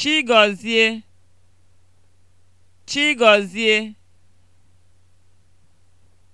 Chigọzie Chigọzie